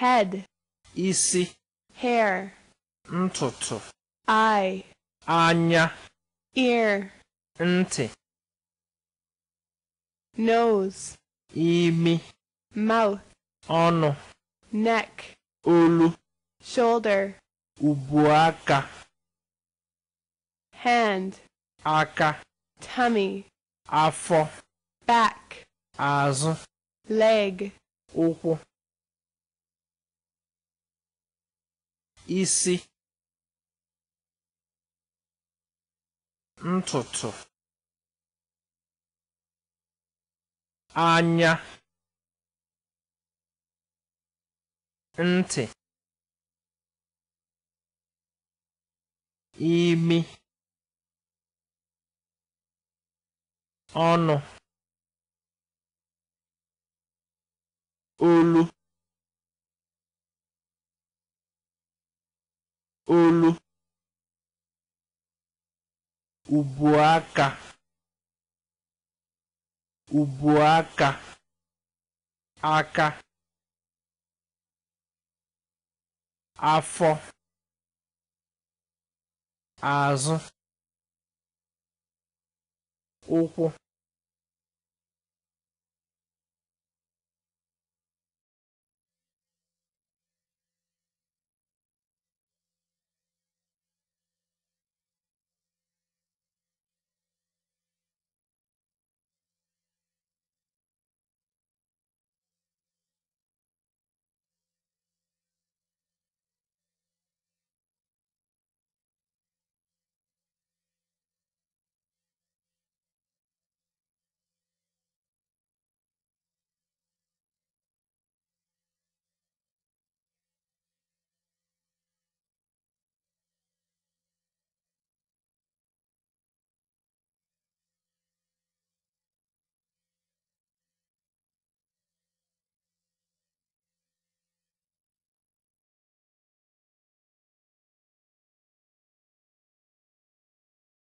head isi hair ntutu eye anya ear nti nose imi mouth ọnụ neck olu shoulder ubuaka hand aka tummy afọ back azụ leg ụkwụ isi ntutu anya ntị imi ọnụ olu olu ubuaka ubuaka aka afọ azụ ụkwụ